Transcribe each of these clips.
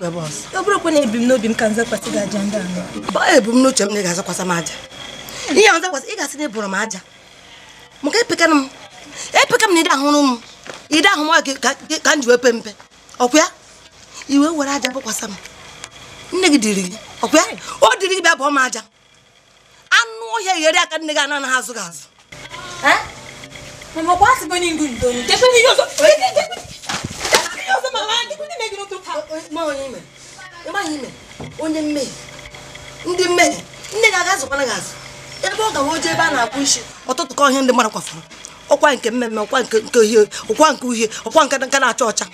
ọ bụrụkwa na ebumnobi m ka nzakwasị gị aja ndị anọ ebumnuche m na ị ga-azakwasị m aja ihe a nzakwasị ị ga-asị na ebụrụ m aja maka epekana m epeka m na ịdị ahụrụ m ịdị ahụ m gị ka m ji wee pe mpe ọkwa ya iwe were aja bụkwasị m nne gị dịrị gị ọkwa o dịrị gị bịa bụọ m aja anụ ọhịa ghere aka nne gị anụ anaghị azụ gị azụ onye mmehie ndị mmehie ndị gị aga zụkwara gị azụ ebe ọ gawa oje ebe a na-akpụ isi ọtụtụ ka ihe ndị mmadụ kwafụrụ ọkwa nke mmemme ọkwa nke nke uhie ọkwa nke uhie ọkwa nke nka na-acha ọcha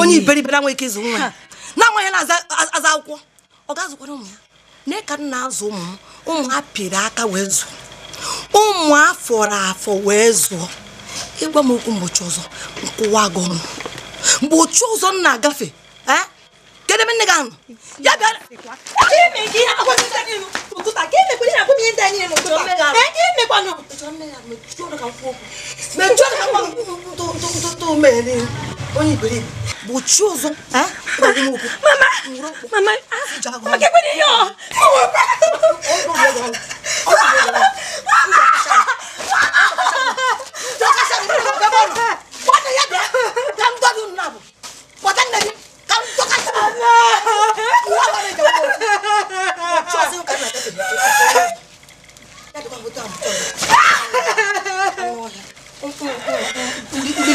onye iberibe anwe ike ịzụ nwa ya na-amaghị na-aza akwụkwọ ọ ga-azụkwara ụmụ ya na ka nna azụ ụmụ m ụmụ ha pịrị aka wee zụọ ụmụ afọrọ afọ wee zụọ ịgwa m okwu mgbochi ọzọ nkụwa gị ọnụ mgbochi ụzọ m na-agafe kedụ ebe nne gị anụ ya bịara gbochie ụzọ mama mama kekwere ihe ọ Mama! Bwana ya bịa ka m dọghị nna bụ kpọta nne gị ka m dọkasị ndị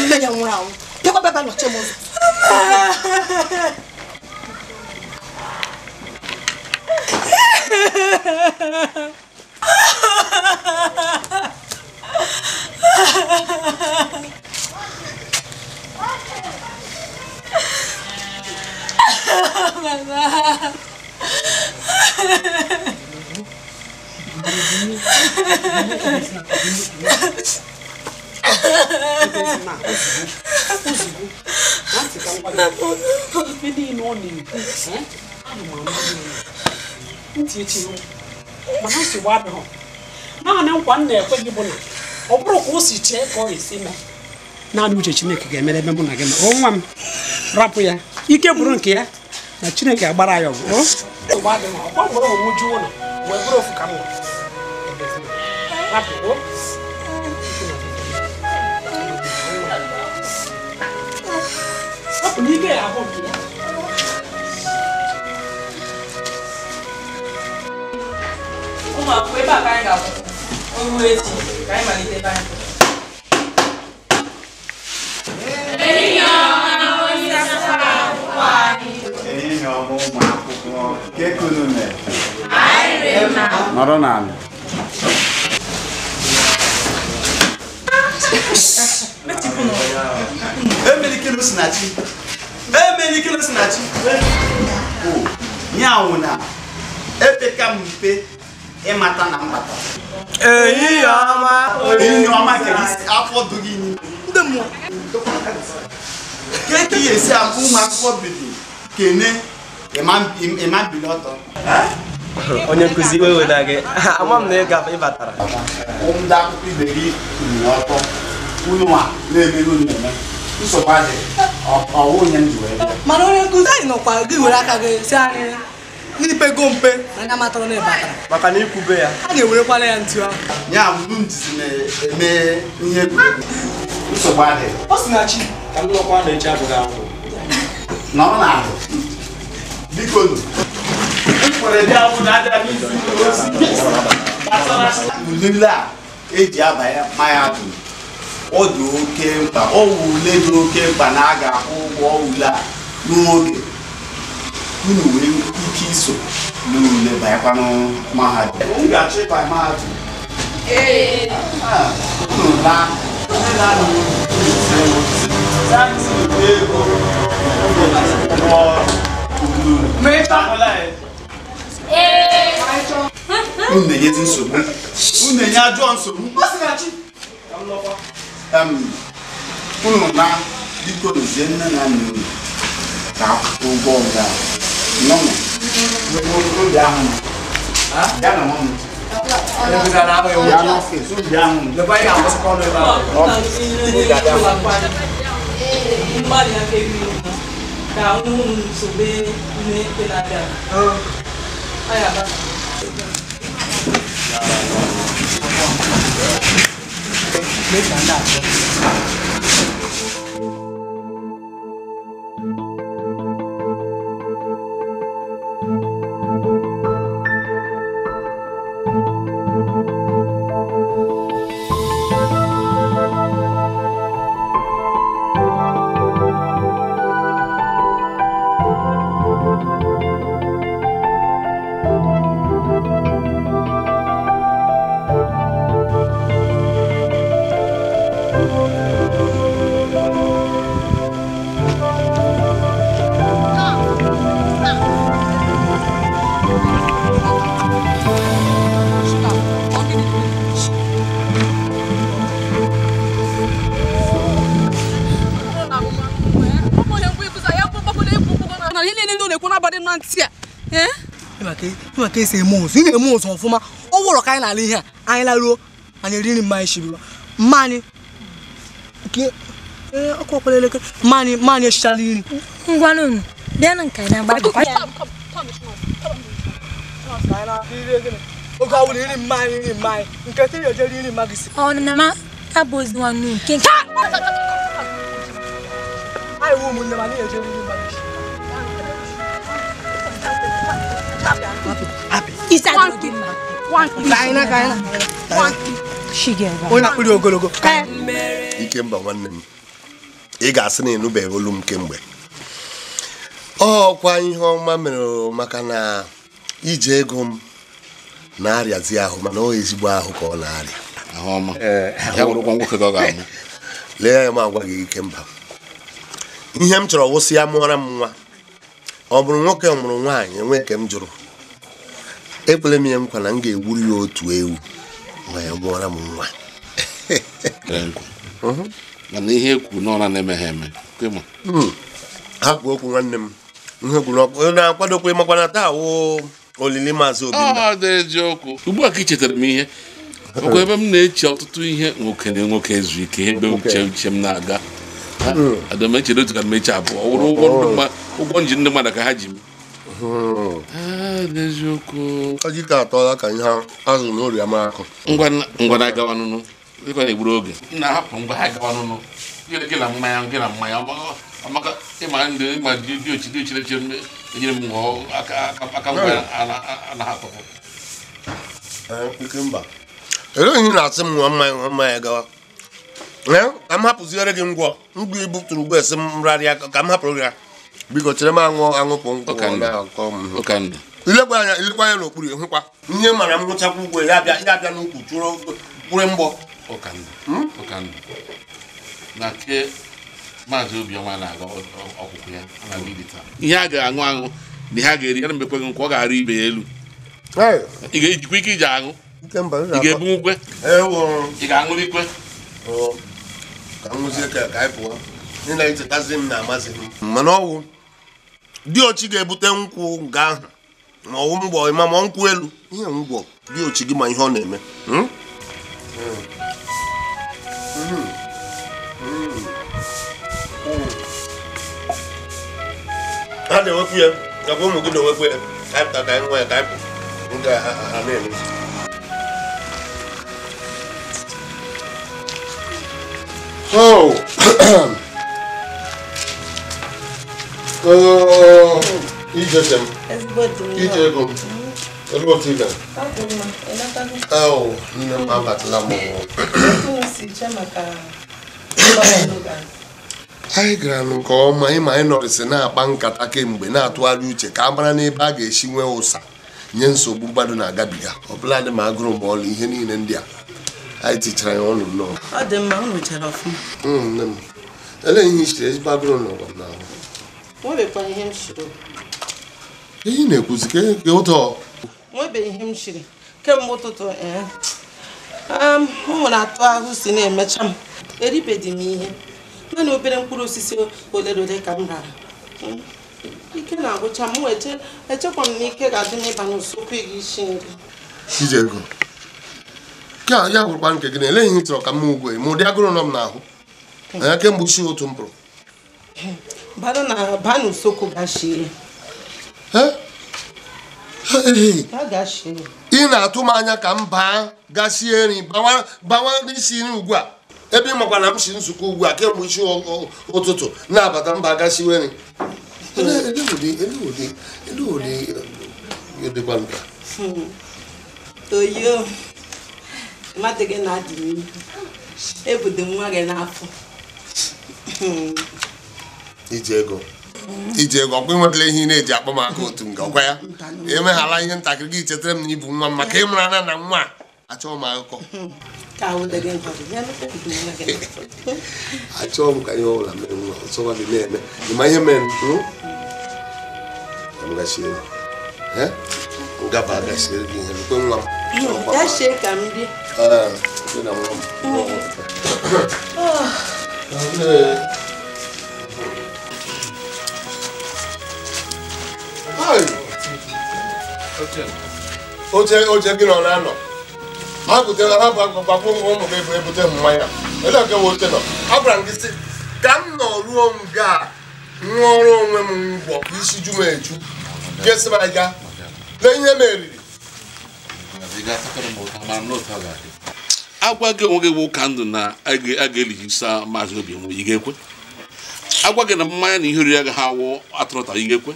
nne ya nwụrụ anwụ bịakwa bịaba nọchie m ụzọ Ha ha ha ha ha! Bàbá. Mana si wa bɛ hɔ. Naa ne nkwa nna ekwe gị bụ na ọ bụrụ ka o si chee ka ọ ga-esi mee. naanị uche chineke ga-emere ebe mụ na gị nọ nwa m rapụ ya ike bụrụ nke ya na chineke agbara ya ọgụ ụmụ akwụkwọ ebe a ka anyị ga-akwụ ọrụ echi ka anyị malite ebe anyị ehihie ọma onye ụmụ akwụkwọ nọrọ n'ala emelikele osinachi ya epeka mpe ịmata na mbata ehihie ọma ehihie ọma n'ime ke ka ihe esi akụ ụmụ akwụkwọ bidi kene ịma e e mbili ọtọ eh? onye nkụzi weweda gị ama m na ị ịbatara batara. akwụkwọ gị kwuru ọtọ unu a na ọwụ onye ndụ ebe mana onye nkụzi anyị nọkwa gị were aka gị pego mpe anya na maka na ikwube ya a ga-ewerekwana ya ahụ ya na-eme ihe egwuregwu nsogbu adịghị ọ sị na chi ka m na echi abụghị ahụ nọrọ na ahụ biko nụ na a eji abanye maya bụ ọ dị oke mkpa ọ wụ ule dị oke mkpa na a ga-akwụ ụgwọ ule a n'oge unu wee ike iso n'ule banyekwa mahadum ga-achọ ịba mahadum ee ahụ. Unu enye dị nsogbu. Unu enye ajọ nsogbu. Unu na biko nzie nne na nna unu ka akwụkwọ ụgwọ ọga. Nọnụ. Ya na nwa Make another. ihe niile ndị na-ekwu n'abalị na ntị a ka esi eme ụzụ ị na eme ụzụ ọfụma ọ ka anyị na-ala ihe a anyị laruo anyị eriri mma anyị shirila mma ọkụ ọkpara elekere mma anyị mma anyị na unu nke anyị agba na ozi nwanne nke nke ụmụnne ma na nri onye ogologo ikemba nwanne m ị ga-asị na ịnụbeghị olu m kemgbe ọkwa ihe ọma mere maka na ije ego m na-arịazi ahụ mana ọ ezigbo ahụ ka ọ na-arịa lee ya agwa gị ikemba ihe m chọrọ wụsị ya mụọra m nwa ọ bụrụ nwoke mụrụ nwaanyị enwe nke m jụrụ ekwere m ihe nkwa na m ga-egburu ya otu ewu ma ya mụọra m nwa mhm. mana ihe ekwu n'ọra na-emeghe eme hmm. ha hapụ okwu nwanne m na-akwadokwe makwana taa wụ olili maazị obi ah, ugbu a ka ị chetara m ihe ọkwa ebe m na-eche ọtụtụ ihe nwoke na nwoke zu ike ebe uche uche m na-aga hmm. ada m echere otu ka m eche abụọ wụrụ ụgwọ ndụ oh. mma ụgwọ njem ndị mmadụ ka ha ji m n'eziokwu ọjị ka atọla ka ihe azụrụ n'oriama akụ ngwa na agawa nụnụ dịka na-egburu oge na-ahapụ ngwa ha gawa nụnụ gị na mmanya gị na mmanya amaka ịma ndị ịma dị ochi dị ochi na echere enyere m ngwa aka ngwa na-ahapụpụ ele ihe na-asị m nwa mmanya nwa mmanya gawa eh, ka m hapụziere gị ngwọ ngwa ibutụrụ ugbo esi m rarịa ka m hapụrụ ya biko chere m anwụ anwụpụ nkwụ ilekwa anya ilekwa anya n'okpuru ihe mara m ya abịa ya n'ukwu chụrụ mgbọ hmm? na nke maazị obiọma na-aga ọkwụkwụ ya ihe a ga-aṅụ aṅụ na ihe a ga-eri yana mbekweghị nkwa ọ ga-arụ ibe ya elu ị ga-ejikwa ike iji aṅụ ị ga-ebunwu ị ga ikwe ka m ka anyị pụọ na-echetazi diochi ga-ebute nkwụ nke ahụ ma ọwụ ịma ma ọ nkwụ elu ihe ngwọ diochi gị ma ihe ọ na-eme hmm? ha na-ewepụ ya ụmụ gị na-ewepụ ya kaịpụta ka nwa ya kaịpụ ha na-eme Oh! ijejem ije ego m ebe otu ịga nne m abatala m anyị gara nke ọma ịma anyị na-akpa nkata kemgbe na-atụgharị uche ka a mara n'ebe a ga-esi nwee ụsa nye nsogbu mmadụ na-agabiga ọbụladị bụla dị ma agụrụ ma ọlụ ihe niile ndị a anyị tichara ya ọnụ nnọọ elee ihe i chere ezigbo agụrụ n'ụwa n'ahụ nwebeghị ihe m chiri ihe na-ekwuzi ka e ụtọ nwebeghị ihe m chiri kemgbe ụtụtụ eh, um, m nwere atụ ahụ si na-emecha m eribeghị m ihe naanị obere mkpụrụ osisi ole na ole ka m rara hmm, ike na-agwụcha m echekwa m na ike ga-adị n'ịba n'usekwu gị isi nri Chijego nke a ya gwụrụkwa nke gị na eleghị ihe chọrọ ka m ugwe ma ụdị agụrụ nọ m n'ahụ anya hmm. kemgbe uchi ụtụ m pụrụ bara na soko n'usekwu eh? gashie ị na-atụ m anya ka m baa gashie nri bawa n'isi nri ugbu a ebe ị makwa na m si nzukọ ugbu a kemgbe isi ụtụtụ na-abata mba gashiwe nri hmm. oyo mmadụ gị na-adị n'ihu ebudo nwa gị n'afọ hmm. iji ego iji ego ọkwa enwetala ihe ị na-eji akpa maka otu nga ọkwa ya emeghala ihe ntakịrị gị chetara m na ibu nwa m maka ịmara na na nwa achọghị m akụkọ ya achọghị m ka ihe ọbụla mere nwa ọsọkwa hmm? gị na-eme ịma ihe mere m ngaba agasiere gị ihe ekwe nwa m oche oche gị nọ na-anọ ha butela ha gbakwụ ụmụ gị bụ ebute mmanya ele nke oche nọ agwara m gị si ka m nọ ruo m ga ṅụọrọ onwe m ngwọ isi ju m eju sị m aga lee ihe m eriri agwa gị onwe gị bụ ụka ndụ na a ga-elighisa maazị obi nwe ị ga-ekwe agwa gị na mmanya na ihe oriri agaghị awụ atụrụta ị ga-ekwe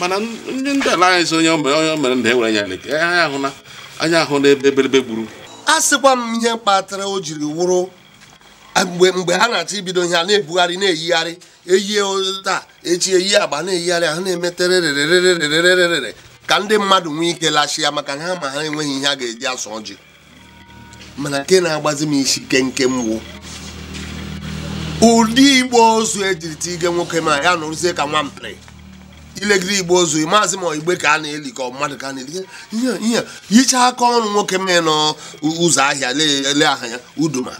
mana ndị anyị so onye onye mere e na ewere anya anyị ahụna anya ahụ n'ebe ebelebe gburu a sịkwa m ihe kpatara o jiri wụrụ mgbe mgbe ha na-achọ ibido ihe a na-ebugharị na-eyigharị eyie taa echi eyi agba na-eyigharị ha na-emetererererererere ka ndị mmadụ nwee ike lachia maka na ha ma ha enweghị ihe a ga-eji asụ ọjị mana nke na-agbazi m isi nkenke mwo ụdị igbo ozu ejirita ige nwoke ma ya nụrụzie ka nwa nwampịrị ilegide igbo ozu maazị ma igbe ka a na-eli ka mmadụ ka a na-eli ihe hichaa aka ọnụ nwoke mee ụzọ ahịa ele aha ya uduma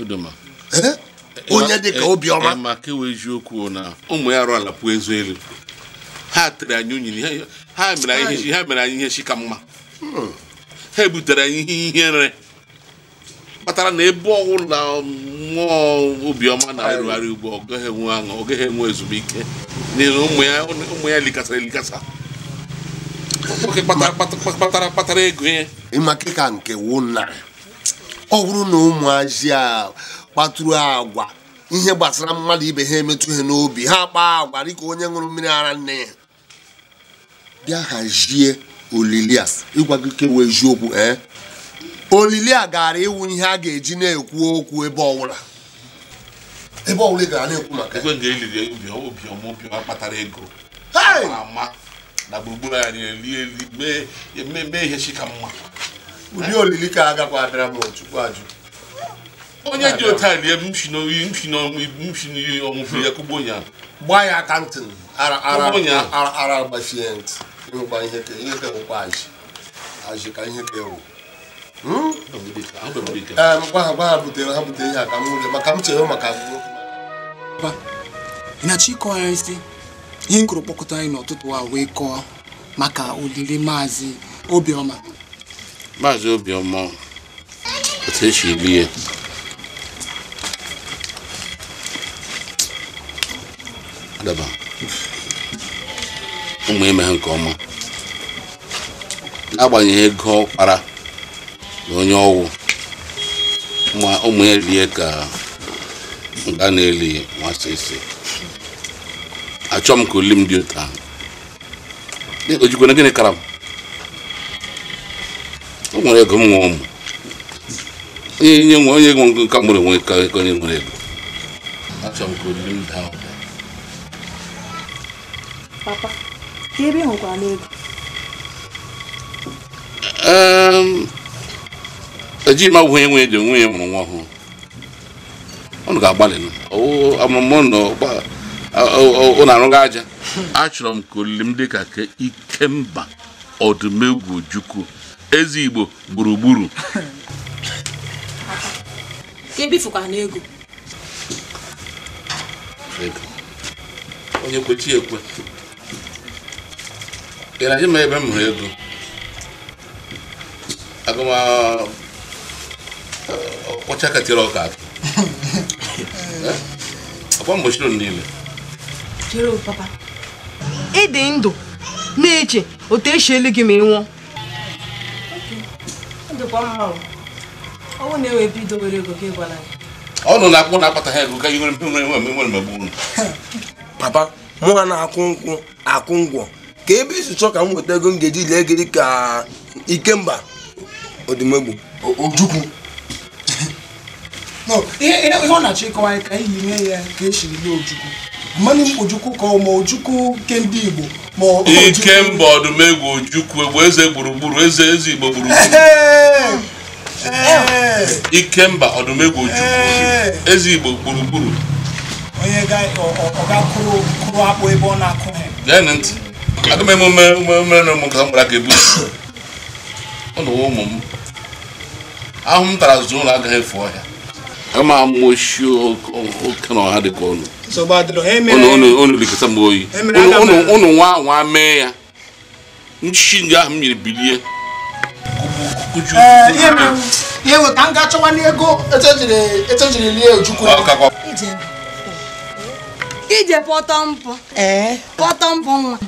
onye dị ka obiọma ma kewe eziokwu na ụmụ ya arụ ala pụọ ezu elu ha tere anyị unyi ha mere anyị ihe shika mma hmm. ha ebutere anyị ihe ihere kpatara na ebe ọbụla mmụọ Obioma na-arụgharị ugbo ọ gaghị enwe aṅụ ọ gaghị enwe ezumike n'ihi na ụmụ ya likasara elikasa nwoke kpatara kpatara ego ya ịmaka ka nke wụ na ọ bụrụ na ụmụazị a kpatụrụ agwa ihe gbasara mmadụ ibe ha emetụ ha n'obi ha kpaa agwa dịka onye ṅụrụ mmiri ara nne ya bịa hazie olili a ịgwa gị e wee eziokwu ee eh? olili a gara ịwụ ihe a ga-eji na-ekwu okwu ebe ọbụla ebe ọbụla gara na-ekwu maka ekwe nga eliri obiọma obiọma kpatara ego ama na gburugburu anyị eli mee ihe chika mma ụdị olili ka a gakwa abịara m chukwu ajụ onye ji otu a lie mshinoyi ọmụpụ ya kugbo ya gbaa ya kantin ara gbachie ntị ịgba ihe ka ihe ka wụkwa ajị ajị ka ihe ka ewu gwa ha gwa ha butere ha butere ihe a ka m maka m chere maka ịnachi ịkọwa ya isi ihe m kụrụ kpọkọta anyị n'ụtụtụ a wee kọọ maka olili maazị obiọma maazị obiọma otu esi eli ya adaba ụmụ ime nke ọma n'agbanyeghị ego ọ kpara na onye ọwụ ụmụ ya rie ka nga na-eli nwata isi achọ m ka oli m dị otu ahụ e, ojikwana gịnị kara m o nwere ego m nwe ụmụ onye nye nwe onye nwe ngo nka mụrụ onwe ka onye nwere ego achọ m ka oli m daa papa ka ebe ị hụkwara n'ego ehm, eji m agwụghị enwe dị onwe ya mụrụ nwa ọhụrụ ọnụ ga-agbalị amụmụ na-arụga aja achọrọ m ka olili m dị ka ike mba ọdụmegwu juku eze igbo gburugburu e onye kwechi ekwe ị na-ajụ m ebe m hụrụ ego agụma ọkpọcha katịrị ọka atụ eh? akwa mgbochiri niile ị dị ndụ na-eche otu esi elu gị ma ị nwụọ ọnụ na-akwụ e na-akpata ha ego ka ihe nwere nwere mgbe papa mụa na akụ nkwụ akụ ngwọ ka ebe isi chọọ ka m nweta ego m ga-eji lee ka ikemba ojukwu ihe ọ na-achọ ịkọwa anyị ka anyị yiri ya ka esiri lie ojukwu mmanụ ojukwu ka ọ ma ojukwu nke ndị igbo ike mba ọdụmegwu ojukwu egwu eze gburugburu eze eze igbo gburugburu ike mba ọdụmegwu ojukwu eze igbo gburugburu onye ga-akụrụ kụrụ akpụ ebe ọ na-akụ ha gee ntị aga m emume emume na ụmụ nke ha gbara ebu ebusi ụlọ ụmụ m ahụ m tara zụ ụlọ agaghị efu ọhịa ama oke kana ọha dị ka ụnụ unu likọta m oyi unu eh. nwa nwa ya nchi ndị ahụ mmiri bilie ihe bụ ka m chọwa n'ego etejiri lie ojukwu ije pọtọ mpọ pọtọ mpọ nwa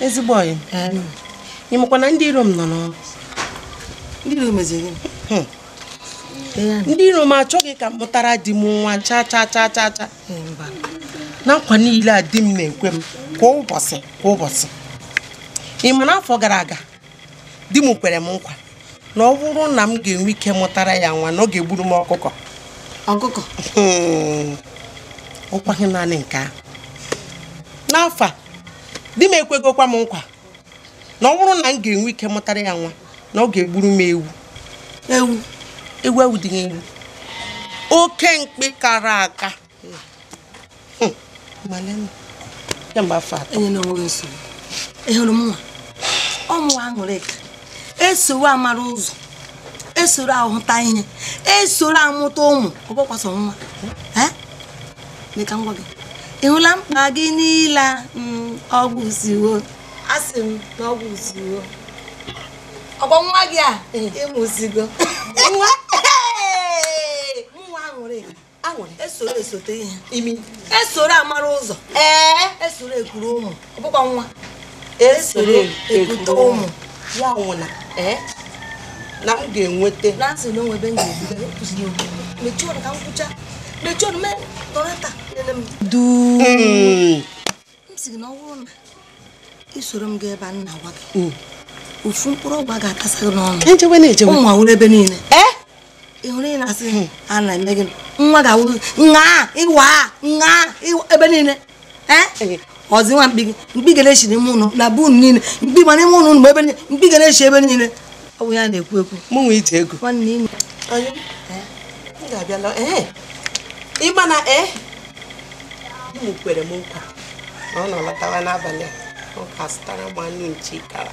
ezigbo ọyị ịmakwa na ndị iro m nọ n'ọrụ ndị iro m achọghị ka m mụtara di m nwa cha cha cha cha cha na nkwa niile a di m na-ekwe m kwa ụbọchị kwa ụbọchị ị ma n'afọ gara aga di m kwere m nkwa na ọ bụrụ na m ga-enwe ike mụtara ya nwa na ọ ga-egburu m ọkụkọ ọkụkọ ụkwaghị naanị nke ahụ n'afọ a di m ekwegokwa m nkwa na ọ bụrụ na m ga-enwe ike mụtara ya nwa na ọ ga-egburu m ewu ewu ewu ewu dị ewu oke mkpi kara aka ọmụwa aṅụrịka esoro amara ụzọ esoro ahụta ihe esoro amụta ụmụ ọgbọkwasọ nwa gị ị hụla mkpa gị niile mm, ọgwụ ziwo asị m na ọgwụ ziwo ọkpọ nwa gị a ịmụzigo nwa nwa aṅụrị aṅụrị esoro esote ihe imi esoro amara ụzọ ee esoro ekuru ụmụ ọbụkwa nwa esoro ekute ụmụ ya nwụna ee na m ga-enweta na nsị na onwe ebe m ga-ebuga ekwuzighị okwu mechie ọnụ ka m kwụcha mechie ọnụ mee nọrọta nene m duu m sị na ọ bụrụ na isoro m gaa ebe a nna gwa gị mm. ofu mkpụrụ ọgwụ a ga-akasa gị n'ọnụ ụmụ awụrụ ebe niile ịhụrụ eh? ị na-asị hmm. a na eme gị nwa ga-awụ nwa ịwa nwa ebe niile eh? eh. ọzi nwa mkpi gị mkpi ga na-echi n'ime ụlọ na bun niile mkpi ma n'ime ụlọ ụlọ ebe niile mkpi ga na ebe niile ọ bụ ya na-ekwu ekwu mụ nwe ije ego ịma na ee m kwere m nkwa na ọ nọ lọtawa n'abalị a ọ ka azụtara m anụ nchi kara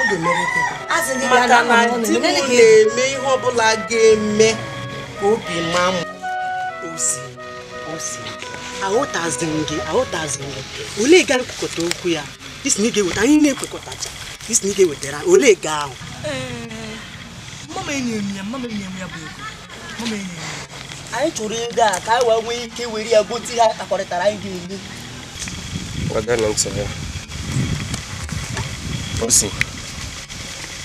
maka na di m na-eme ihe ọbụla ga-eme ka obi ma m osi osi gị olee okwu ya isi na ị ga-eweta isi na ị olee ga ahụ anyị chụrụ ego a ka anyị wee ike were ya gote ihe akakọrịtara anyị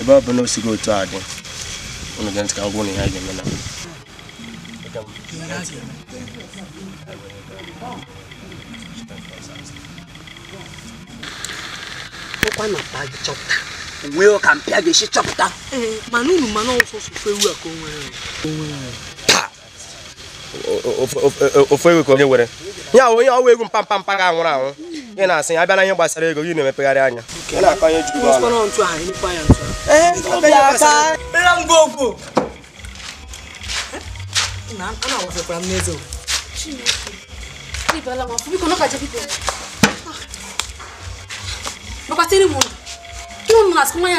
ebe ọ bụ na o sigo otu a dị unu ga ntị ka ngwa ụnụ ya ga-eme na ụkwa na mpa gị chọpụta uwe ọ ka mpịa ga-esi chọpụta mana unu mana ọsọsọfe ewu a ka o nwere ofe ewu ka onye were ya onye ọwa egwu mpampampa ga anwụrụ anwụ ị na-asị ya abịa na ihe gbasara ego gị na-emepegharị anya nwa ya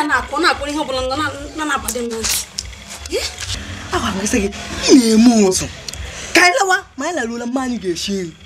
na na ihe ọbụla na-abadị m n'otu agwara gị sị gị ị na-eme ụzụ ka anyị lawa ma anyị laruola mma anyị ga-esi nri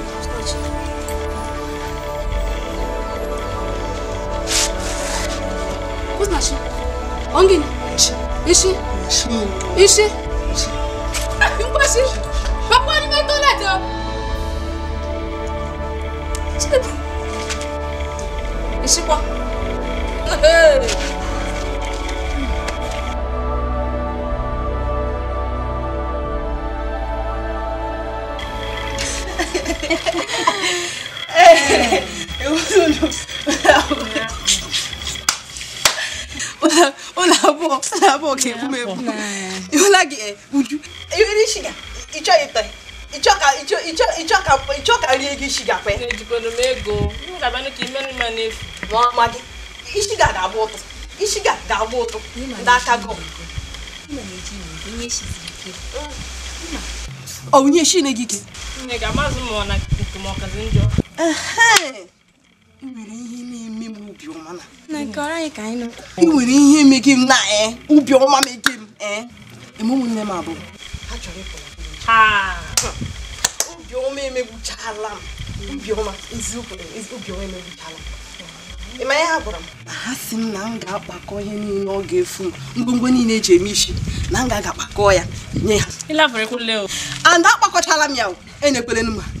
다시 엉기니 이씨 이씨 육바씨 바빠 아니면 또 나죠 제발 이씨 봐 abụọ ka ebu m ebu ịhụla gị uju eriri shuga ịchọ ịtọ ịchọ ka rie gị shuga kwe ma ishiga ga-agba ụtụ ishiga ga-agba ụtụ n'aka gị onye gị ike ga ọ ị nwere ihe na-eme m ubi na nwere ihe m na ubi eh? ọma m eh? m abụọ ha chọrọ emegbuchala m obiọma eziokwu emegbuchala m ịma ihe ha m ha si m na m ga-akpakọ ihe niile ọ ga-efu m ngwongwo niile eji eme isi na m ga-aga ya nye akpakọchala m ya enyekwelen m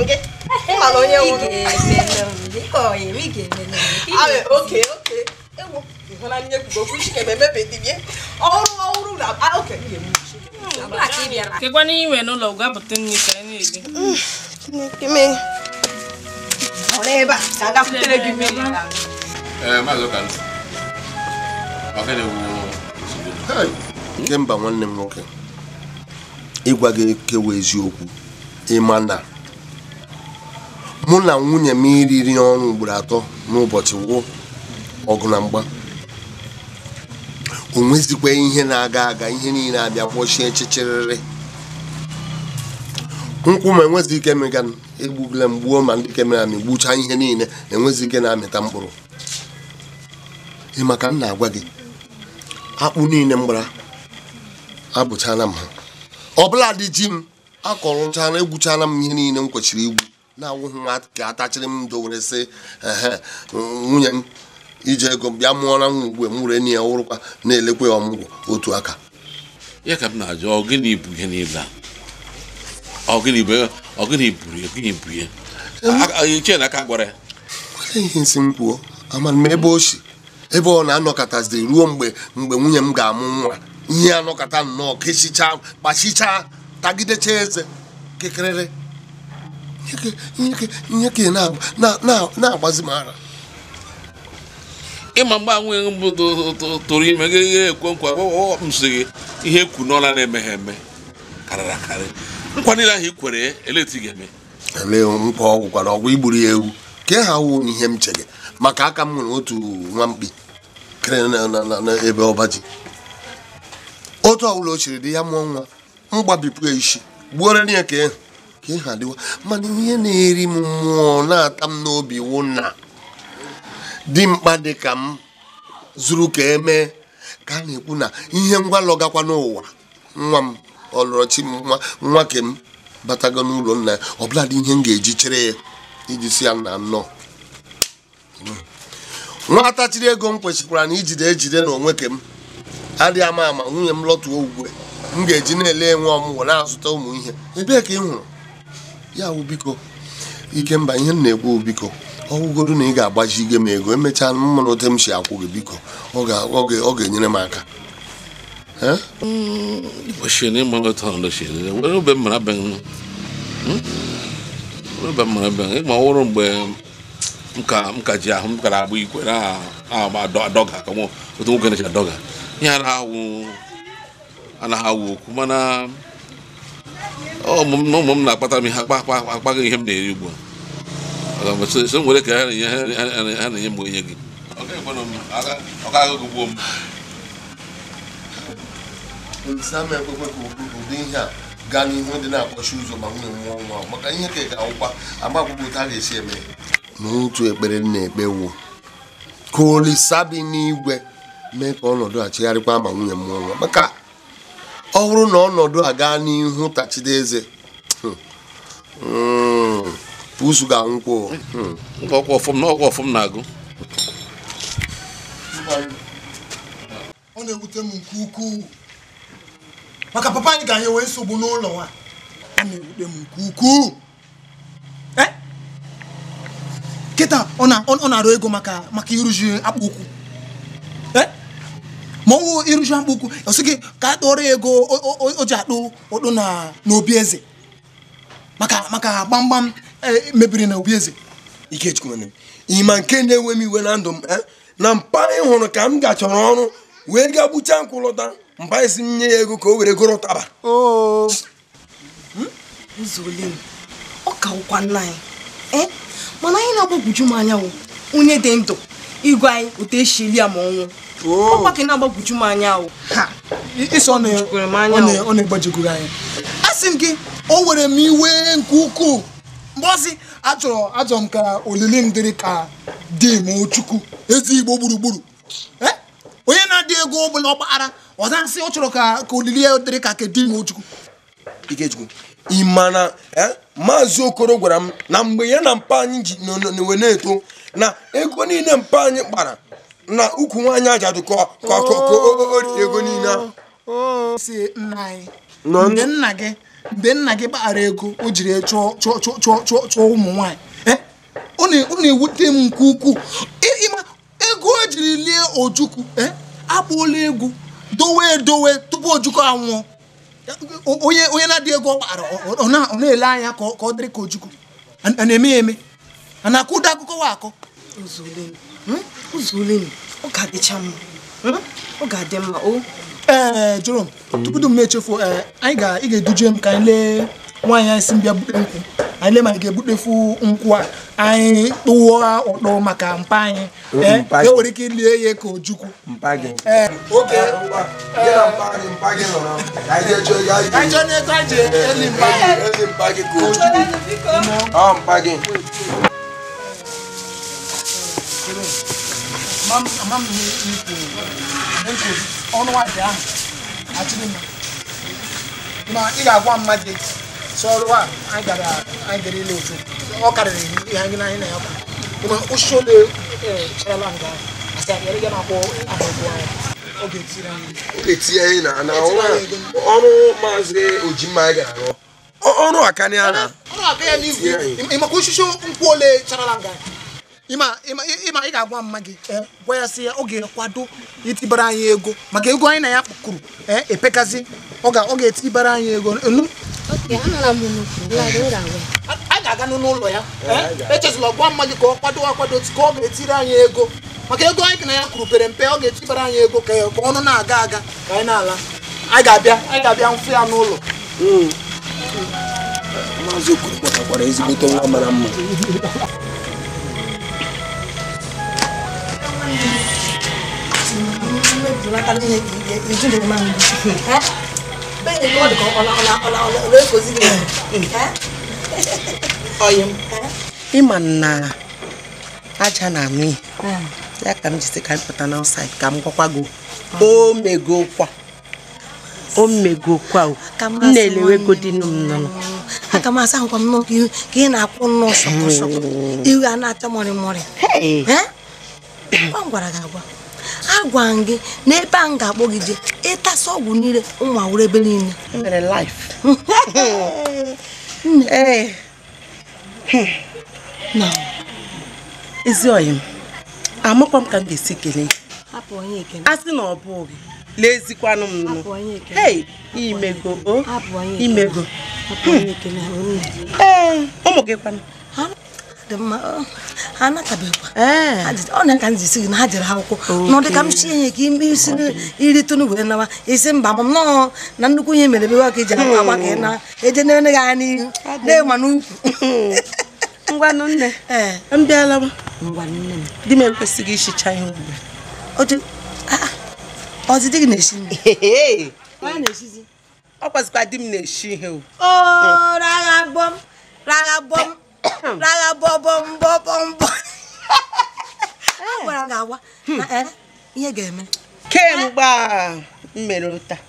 nke ịmara onye nwụrụ oke oke ewu ịhụnanya ekwugo okwu chikebe emebediri ya ọhụrụ ọhụrụ na oke kekwana iwe n'ụlọ gwa bụta nri ka anyị na ọrụ ebe a ka agakwutere gị mmiri nke mba nwanne m nwoke ịgwa gị eziokwu ịma na mụ na nwunye m iriri ọnụ ugboro atọ n'ụbọchị wụ ọgụ na mgba o nwezikwa ihe na-aga aga ihe niile abịa kpọchie chichiriri nkwụ ma enwezi ike mịga egbugula m gbuo ma ndị kemera m gbuchaa ihe niile enwezi ike na-amịta mkpụrụ ị maka m na-agwa gị akpụ niile m gbara abụchala m ha ọbụla dị ji m akọrọchala egwuchana m ihe niile m kwechiri igwu na awụghị nwa ka atachiri m ndo si sị nwunye m iji ego bịa mụọra m ugbu m were ụrụkwa na-elekwa ya ọmụgwọ otu aka ya ka m na-ajụ ọgịnị bụ ihe niile a ọgịnị bụ ọgịnị bụ ọgịnị bụ ya ichie na aka gwara ya ihe nsị m kwuo amara m ebe o si ebe ọ na-anọkọtazi ruo mgbe mgbe nwunye m ga-amụ nwa ihe anọkọta nnọọ kechicha kpachicha, tagidechaa eze kekerere. nyeke na-agbazi m ara ịma mgbe anwụ mbụ tụrụ ime gị ihe ekwe nkwa msi gị ihe kwu n'ọla na-emeghe eme karịrị akarị nkwa niile ahụ i kwere eleti ga-eme ele nkwa ọgwụkwara ọgwụ igburu ya ewu ka ha wu ihe m chere maka aka m nwere otu nwa mkpi kere n'ebe ọba otu ọbụla o chiri dị ya mụọ nwa m gbabipụ ya isi gbuoro ya ka ịhụ e. ka ihe adịwa mana ihe na-eri m mmụọ na-ata m n'obi wụ na dị mkpa dị ka m zuru ka emee ka a na-ekwu na ihe ngwa lọgakwa n'ụwa nwa m ọlọrọchi nwa nwake m batago n'ụlọ nna ya ọbụla dị ihe m ga-eji chere ya iji si ya na nnọọ nwa chiri ego m kwesịkwara na ijide ejide na onwe ke m adịghị ama ama nwunye m lọtụọ ugwe m ga-eji na-ele nwe ọmụgwọ na-azụta ụmụ ihe ebee ka ị hụrụ ya wụ biko mba ihe m na-ekwu biko ọgwụgodu na ị ga-agbajigo m ego emechaa mmanụ ote m si akwụ gị biko ọ ga-enyere m aka e hmm? ọhụrụ mgbe m ka ji ahụ m agba na-adọga otu nwoke na-eji adọga ihe anaghị awụ okwu ụmụ m na-akpata m ihe akpa akpaghị ihe m na-eri ugbu a so m were ka ha na-enye m onye gị ame ekpekwe ka ụdị ihe a gaa n'ihu dị na-akpọchi ụzọ ma nwunye nwụọ nwa maka ihe ka ị ga-awụkwa agba akwụkwọ a ga-esi eme n'otu ekpere na-ekpe wu ka olisa bi n'igwe mee ka ọnọdụ a chegharịkwa ma nwunye m mụọ nwa maka ọ bụrụ na ọnọdụ a gaa n'ihu tachide eze hmm, hmm, pusu ga-anwụkwọ hmm. ọkwa ọfụm na ọkwa ọfụm na-agụ ọ na-ewute m nke ukwuu maka papa anyị ga-anye wee nsogbu n'ụlọ a a na-ewute m nke ukwuu eh? kịta ọ na-arụ ego maka maka akpụ akpụkwu ma ọnwụ iruju mkpụkwu ọsị gị ka a kpọrọ ego o ji akpụ ụkpụ n'obi eze maka maka gbamgbam e, mebiri na obi eze ịma nke na-enwe m iwe na ndụ m e, na mpa ị hụrụ ka m gachọrọ ọrụ wee gaa gbucha nkwụ lọta mpa isi m nye ya ego ka o were goro taba. Hmm? ọ ka ụkwa nna anyị e, mana anyị na-agbagwoju m anya onye dị ndụ igwe anyị otu eshili ya ma ọnwụ Oh. ọkwa ka na-agbagwoju m anya ọ na-egbajikwuru anyị asị m gị o were m iwe nke ukwuu mgbe ọzi achọrọ achọrọ m ka olili m dịrị ka di m chukwu ezi igbo gburugburu e? onye na-adị ego ọbụla ọgbaghara ọza nsị ọ chọrọ ka olili ya dịrị ka ke di m chukwu ị ma na e, maazị okoro gwara m na mgbe ya na mpa anyị ji n'owe na-eto na ego niile mpa anyị kpara na ukwu nwaanyị ajadu ka o rie ego niile si nna anyị mgbe nna gị mgbe nna gị kpaghara ego o jiri chụọ chụọ ụmụ nwaanyị eh, ọ na-ewute m nke ukwuu e, ịma ego o e jiri lie ojukwu eh, akpụola egwu dowe edowe tupu ojukwu anwụọ onye onye na-adịghị ego ọ kpaghara ọ na-ele anya ka ọ dịrị ka ojukwu a na-eme ya eme a na-akụda akụkọ wa akọ Hmm? ọ ga-adịcha mma hmm? ọ ga-adị mma o ee eh, Jerome tupu m na-echefu eh, anyị ga-eduje m ka anyị lee nwaanyị anyị si mbịa bute nkwụ anyị lee ma anyị ga-ebutefu nkwụ a anyị tụọ ụtọ maka mpa anyị eh, e nwere ike ilie ya ka ojukwu ego ma m ahụ achịrị ị ga-agwa mmadụ si ọrụ a anyị gara anyị gara ile otu ọ karịrị ihe anyị na na ya kwụ ma ole nga asa e ya ya na ọ ga anyị na na ọrụ maazị ọrụ akanị a na maka osisi nkwụ ole charala nga ịma ị ga-agwa mma gị e, gwa ya sị ya oge ga-ekwado itibara anyị ego maka ego anyị na ya kpụkụrụ e, epekazi ọ ga-etibara anyị ego a ga-aga n'ụlọ ya e, echezula gwa mma gị ka ọ kwado akwado ka ọ ga-etiri anyị ego maka ego anyị na ya kwuru pere mpe ọ ga-etibara anyị ego ka ọnụ na-aga aga ka anyị na-ala anyị ga-abịa anyị ga-abịa mfe ya n'ụlọ hmm. maazị Okoro kpọtakwara ezigbote nwa mara mma bẹ́ẹ̀ni kọ́ọ̀dù na aja na-amị ya ka m jisi ka m pụta n'ọsaịd ka m gwakwa gị o megokwa o megokwa o m na-elewegodi m nọ aka m asa nkwa m n'okwu ka ị na-akwụ a na-acha mọrị mọrị m gwara gị agwa agwa gị na ebe a m ga-akpọ gị jee ọgwụ niile ụmụ awụrụ ebe niile e eh. hmm. ezi ọyị m amakwa m ka m ga-esi kelee a sị na ọ bụghị leezikwanụ m nụ imego o oh. imego ee eh, ụmụ gị kwanụ ha mma ọ na eh. ka m gị na ha jere akwụkwọ n'ụdị ka m ka ime isi iritụnụ wee nawa isi mba m nọọ na nnukwu ihe mere bewa ka aa agba ka ị na eje na gị anya n'ihu na-enwa n'ukwu ngwanụ nne eh. m m nne ishicha ihe ọdịdị gị na ọ kwazikwa di m na ihe rárá bọbọ mbọbọ mbọ agwara gị agwa hmm. eh, ihe ga-eme kemgbe mmerụrụ taa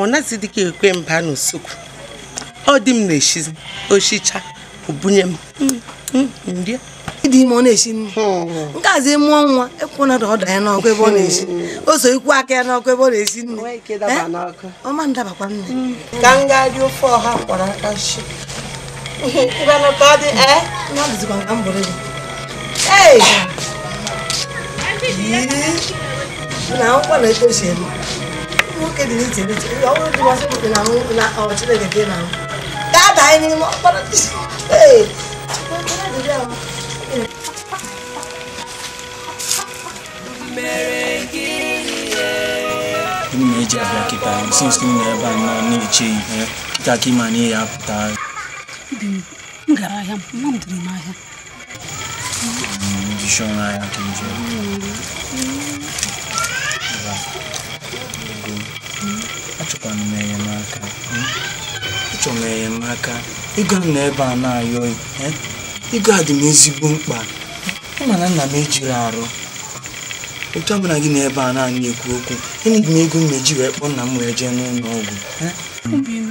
ọ naghịzi dịka ekwe mba n'usekwu ọ dị m na-eshizi oshicha obunye m hmm. Hmm, ndị dị ime ọ na-eshi nri nke azi mụọ nwa ekwuna na ọda ya n'ọkụ ebe ọ na-eshi o so ikwu aka ya n'ọkụ ebe ọ na-eshi nri eh, ọma ndabakwa nne ka m dị ofe ọha kwara aka shi Ibana ka ọ dị ee? Na dịzikwa nka m bụrụ gị. Ee! Yii! Na akwụkwọ na eto si eme. Nwoke dị n'iche n'iche. Ọ bụrụ dị masị bụ na nwunye na ọ Chineke dị na m. Gaa daa anyị n'ime ọkpọrọ dị. Ee! Gịnị ma eji abịa kịta since gịnị na ebe a nọ na-eche ihe kịta ka ịma na ihe apụta m gara ahịa mma m dịrị m ahịa achọkwara m enyemaka achọrọ m enyemaka ego m n'ebe a na-ayọghị a dị m ezigbo mkpa ịma na nna m ejiri arụ otu ọ bụla gị n'ebe a na naanị ekwu okwu enyeghị m ego m na-eji wee kpọọ nna m wee jee n'ụlọ ọgwụ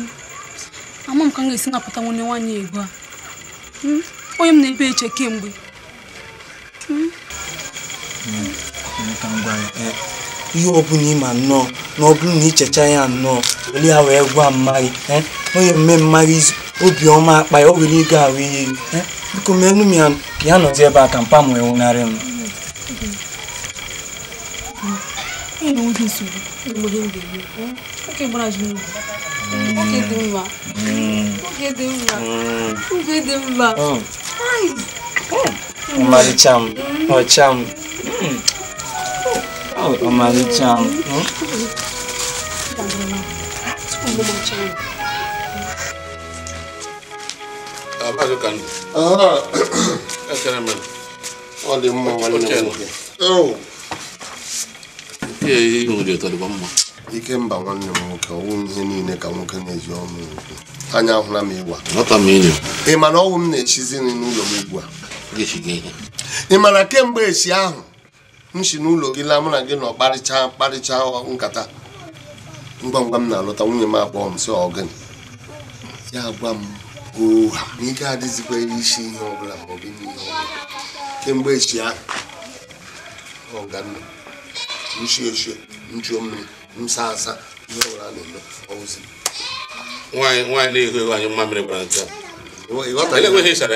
ama m ka m ga-esi napụta nwanne nwaanyị ego a hmm? onye m na-ebe eche kemgbe hmm? eh, ihe ọ bụla ịma nnọọ na ọ na ichecha ya nnọọ were ya wee gwa onye mme mmaghị obiọma akpa ya o were ego ahụ ihe eh? biko m ya ya nọzi ebe a ka m m hmm. Oke dị hmm. Oke oge hmm. Oke mma oge dị mma Oh, m ọcha m ọmarịcha m Oh, dị mma nwanne m nwoke ihe ihe nwere ụtọ dịkwa mma Ike mba nwanne m nwoke ọnwụ ihe niile ka nwoke na-eji ọnụ ugwu. anya ahụla m ịgwa ị ma na ọnwụ m na-echizi nri n'ụlọ m ugbu a ị ma na kemgbe echi ahụ m si n'ụlọ gị laa mụ na gị nọ kparịcha kparịcha nkata ngwa ngwa m na-alọta nwunye m akpọọ m si ọgịnị ya gwa m oha na ike adịzikwa isi ihe ọbụla ma ọ bụ ihe ọbụla kemgbe echi ahụ ọganna nchie ochie nchuo mmiri msasa ihe ọbụla a na-eme ọwụzi nwaanyị nwaanyị na-ehu ehu anyị mmamịrị gbara nke ịsara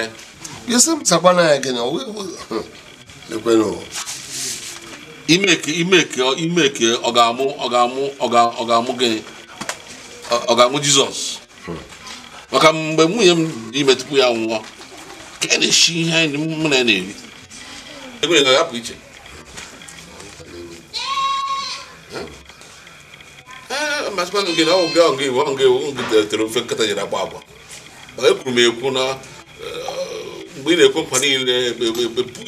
ya imeke ọ ga-amụ ọ ga-amụ ọ ga-amụ gị ọ jizọs maka mgbe nwunye m dị ime ya nwụọ ka na-eshi ihe anyị mụ na ya na-eri ga iche masịkwa na na ọgụ ọgụ iwu ọ iwu butere ofe nkata nyere agba agwa ekwuru m ekwu na mgbe ị na-ekwe nkwa niile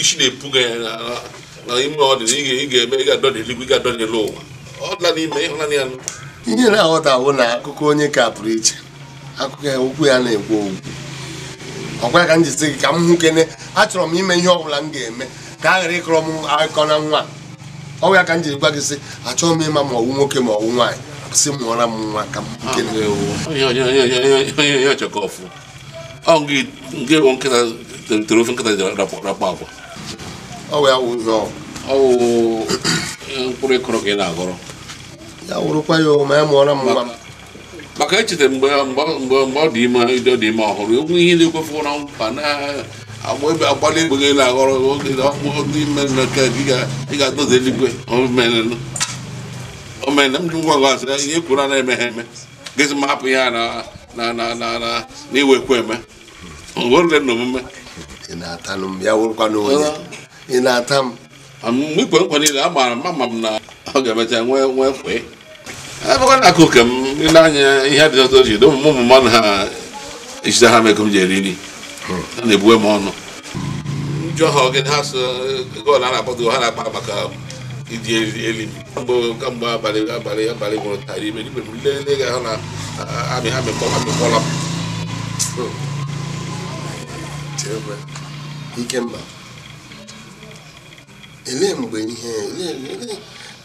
isi na-epuga ya na ime ọdịnihu ị ga-eme ị ga-adọ n'eluigwe ị ga-adọ n'elu ụwa ọ dịla n'ime ya na-aghọta bụ na akụkọ onye ka pụrụ iche akụkọ ya na-ekwu okwu ọkwa ka m ka m kene achọrọ m ime ihe ọ bụla m ga-eme ka a ghara ịkọrọ m akụkọ na nwa ọgwụ ya ka m ji gwa gị sị achọghị m ịma ma ọwụ nwoke ma ọwụ nwaanyị si mụọra m nwa ka m ya wụrụkwa ya ome ya mụọra m nwa maka echeta mgbe ọ dị ime ọ dị ime ọhụrụ egwu ihe na-ekwefu na mkpa na agba ebe agbalị egbe gị na-aghọrọ oge ga eluigwe na m ngwa ngwa asị ihe kwuru na-eme eme gịzị ma hapụ ya na na na na na iwekwa eme werule na omume i na-ata m mgbe ikwe nkwa niile m na ọ ga-emecha nwee nwee na akụ ke m ile anya ihe dị ọtọ ji ụmụ ụmụ mmadụ ha echite ha meko m ji eri nri ha na-ebuwe m ọnụ njọ ha ogene ha so a na ha na iji elimi kamgbe abalị abalị abalị gwụrụ tara ime ibe m ga ahụ na amị ha mgbe ihe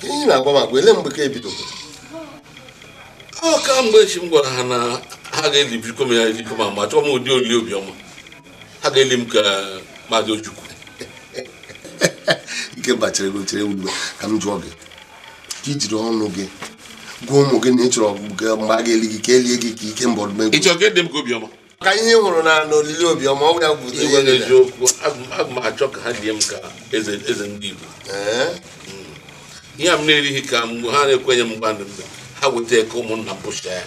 ihe na-agwa m agwa mgbe ka ebidoro ọ ka mgbe chi m gwara ha na ha ga-eli m ya ma m ụdị obiọma ga-eli m ka Ojukwu ike chere gị chere ka m jụọ gị ka ijiri ọnụ gị gwa ụmụ gị na ị chọrọ mgbe a ga-eli gị ka elie gị ka ikemba ọdụmegwu e ka ihe hụrụ na n'olili obiọma ọ ya gwụta ihe m achọ ka ha die ka eze ndị Igbo hmm. ihe a m na-erighị ka mgbe ha na-ekwenye m mgba ha weta eke ụmụnna m si ya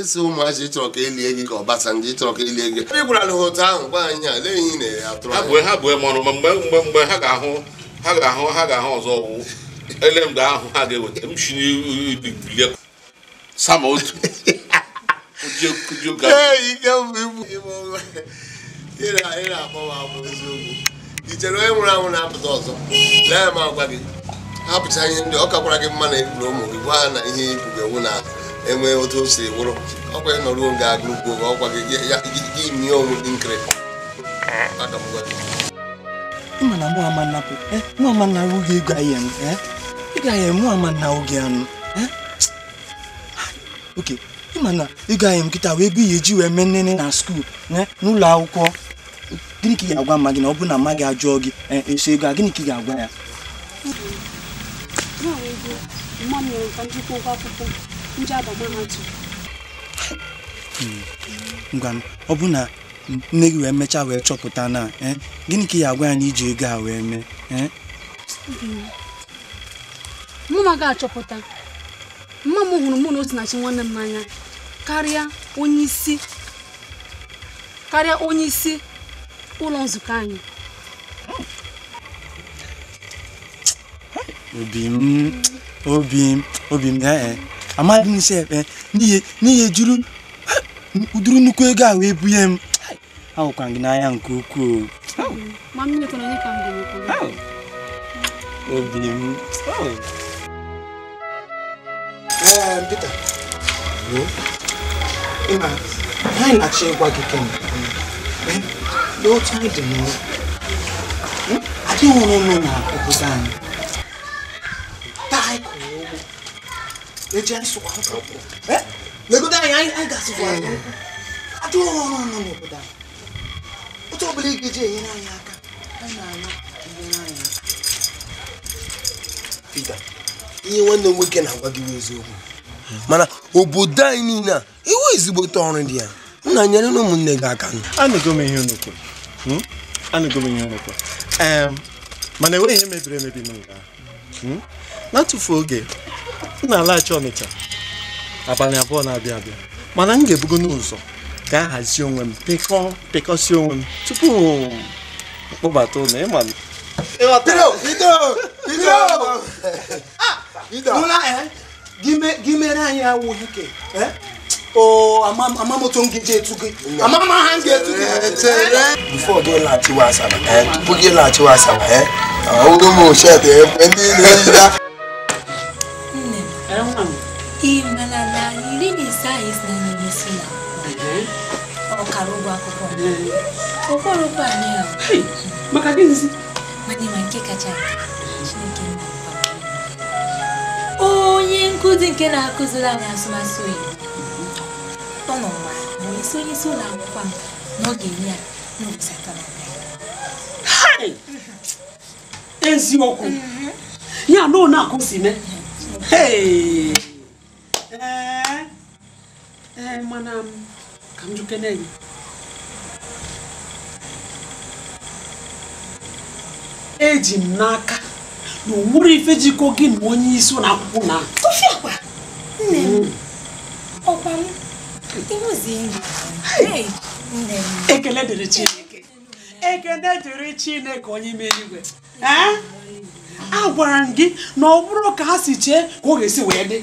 ịsị ụmụazị ịchọrọ ka elie gị ka ndị ịchọrọ ka elie gị ị gwara ha otu ahụ gwa anyị a lee ihe na atụrụ ha bụ mmanụ ma mgbe mgbe mgbe ha ga-ahụ ha ga-ahụ ha ga-ahụ ọzọ ọgwụ ele mgbe ahụ ha ga-eweta m shi n'ibibilie sama otu i chere onye nwụrụ anwụ na-apụta ọzọ lee ma gwa gị ha pụcha ihe ndị ọ kakwara gị mma na egburu ụmụ gị gwa ha na ihe egwu ga-enwu na ahụ enwee otu o siri wụrụ ọkwa ị nọruo nga agụ ọkwa gị nye onwe dị nkiri mana mụ ama na arụ gị ịga ya na oge anụ oke ịma na ịga ya nkịta wee bi ihe eji wee mee nnene na skuul eh, n'ụlọ akwụkwọ gịnị ka ị agwa mma gị na ọ bụrụ na mma gị ajụọ gị eh, eso ego a gịnị ka ị ga-agwa ya ndị mahadum ngwa m ọ bụ na nne gị wee mechaa wee chọpụta na eh, gịnị ka ị agwa anyị iji ego a wee mee eh? mụ na achọpụta mma m hụrụ mụ na Osinachi nwanne m n'anya karịa onye isi karịa onye isi ụlọ nzukọ anyị obi m obi m obi m eh, amaghị m nsị ekpe n'ihi juru ụdịrị nnukwu ego ahụ ebunye m ahụkwa gị n'anya nke ukwuu obi m na dị n'ụlọ hm? adịghị ọrụ ụlọ na obodo anyị taa anyị eji anyị sụkwa akwụkwọ legodo anyị anyị gasịkwa ajọ ọrụ nọ n'obodo anyị otu ọbụla ị ga-eji enyere anyị aka na aka Peter ihe nwanne m nwoke na-agwa gị eziokwu mana obodo anyị niile a iwu ezigbote ọrụ dị ya nna nyere na ụmụnne gị aka ihe mana enweghị ihe mebiri emebi n'ụga na oge m na-alaghachi Ọnịcha abalị abụọ na-abịa abịa mana m ga-ebugo n'ụzọ ga-ahazi onwe m pịkọ pịkọsi onwe m tupu kpọbata ụlọ ịma m ah, eh? gimere anyị awụ hike eh? amamoto m gị etu gị amama ha gị etu eh, gị bifo gị laghachiwa asaba tupu gị laghachiwa asaba ọwụrụ ah, m ochie ndị na-eyida mana na iri na ise anyị si na anyịnya esi na ọkara ụgwọ akwụkwọ okporokwu anyị ahụ maka gịnịzi mana ma nke kacha chineke nna onye nkụzi nke na-akụziri anyị asụmasụ oyibo ọ isi onye isi ụlọ akwụkwọ m n'oge enye ya n'ụbọchị na eziokwu mm-hmm. ya na ọ na ee eh? ee eh, mana m ka m na gị eji m n'aka na onwere ife jikọ gị na onye isi ụlọ akwụkwọ na nne m hmm. ọkwa m ekele dịrị chineke ekele dịrị chineke onye ime igwe eh? a gwara m gị na ọ bụrụ ka ha si chee ka ọ ga-esi wee dị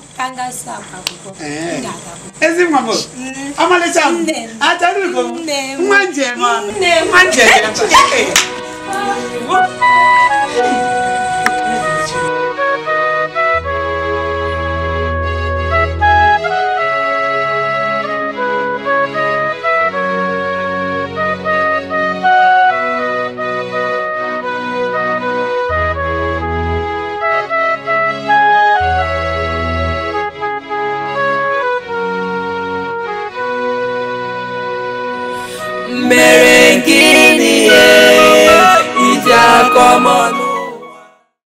kangasa akụkọ eh. ezi mama m atarugo nwa njem nwa njem mere nke n'ihe iji aka